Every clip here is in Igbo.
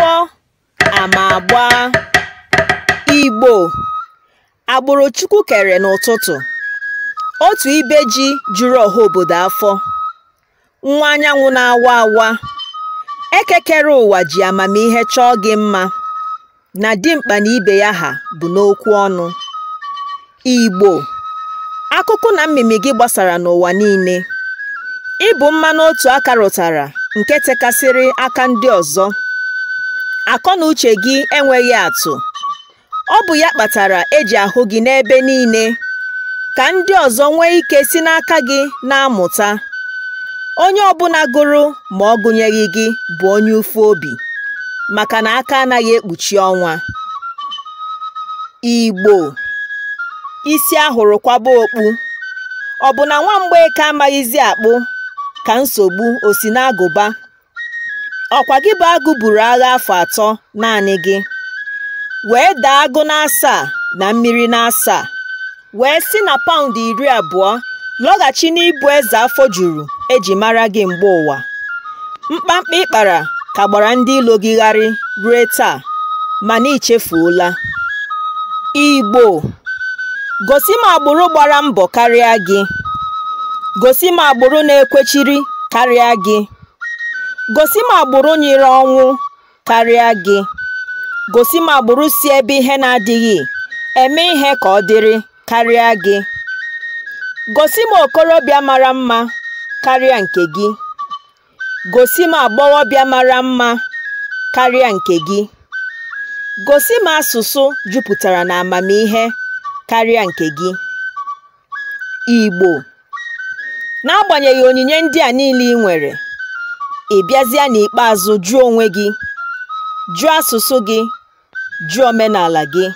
Akwụkwọ agba. Igbo agbụrụ Chukwu kere n'ụtụtụ, otu ibe ji juru ọha obodo afọ, nwa anyanwụ na-awa awa, ekekere ụwa ji amamihe chọọ gị mma, na dimkpa na ibe ya ha bụ n'okwu ọnụ. Igbo, akụkụ na mmimi gị gbasara n'ụwa niile, ịbụ mmanụ otu aka rụtara nke tekasịrị aka ndị ọzọ. akọ na uche gị enweghị atụ ọ bụ ya kpatara eji ahụ gị n'ebe niile ka ndị ọzọ nwee ike si n'aka gị na-amụta onye ọbụla gụrụ ma ọ gụnyeghị gị bụ onye ufu obi maka na aka anaghị ekpuchi ọnwa Igbo isi ahụrụ kwaba okpu ọ bụ na nwa ka amaghịzi akpụ ka nsogbu o si n'agụba ọkwa gị bụ agụ buru agha afọ atọ naanị gị wee daa agụ n'asaa na mmiri n'asaa wee si na paụnd iri abụọ lọghachi n'ịbụ eze afọ juru eji mara gị mgbe ụwa mkpamkpa ịkpara ka gbara ndị ilo gị gharị ruo taa mana ichefuola igbo gosi m agbụrụ gbara mbọ karịa gị gosi m agbụrụ na-ekwechiri karịa gị gosi m agbụrụ nyere ọnwụ karịa gị gosi m agbụrụ si ebe ihe na-adịghị eme ihe ka ọ dịrị karịa gị gosi m okorobịa mara mma karịa nke gị gosi m agbọghọbịa mara mma karịa nke gị gosi m asụsụ jupụtara na amamihe karịa nke gị Igbo n'agbanyeghị onyinye ndị a niile ị nwere ị bịazịa n'ikpeazụ jụọ onwe gị jụọ asụsụ gị jụọ omenala gị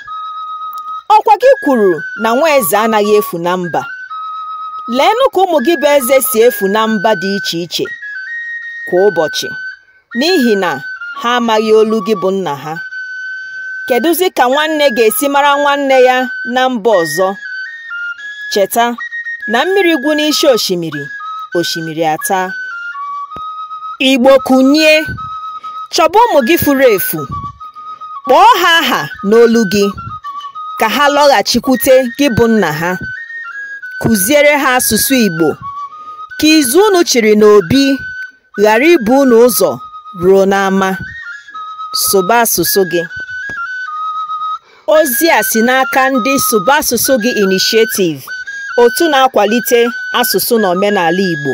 ọkwa gị kwuru na nwa anaghị efu na mba leenụ ka ụmụ gị bụ eze si efu na mba dị iche iche kwa ụbọchị n'ihi na ha amaghị olu gị bụ nna ha kedụzi ka nwanne ga-esi mara nwanne ya na mba ọzọ cheta na mmiri gwụ n'isi osimiri osimiri ata Igbo kunye chọba ụmụ gị furu efu, kpọọ ha aha n'olu gị, ka ha lọghachikwute gị bụ nna ha. Kụziere ha asụsụ Igbo, ka izu unu chịrị n'obi ghara ibu unu ụzọ ruo n'ama. Sụba asụsụ gị. Ozi a si n'aka ndị Sụba Asụsụ Gị inishietiv otu na-akwalite asụsụ na omenala Igbo.